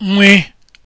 nwe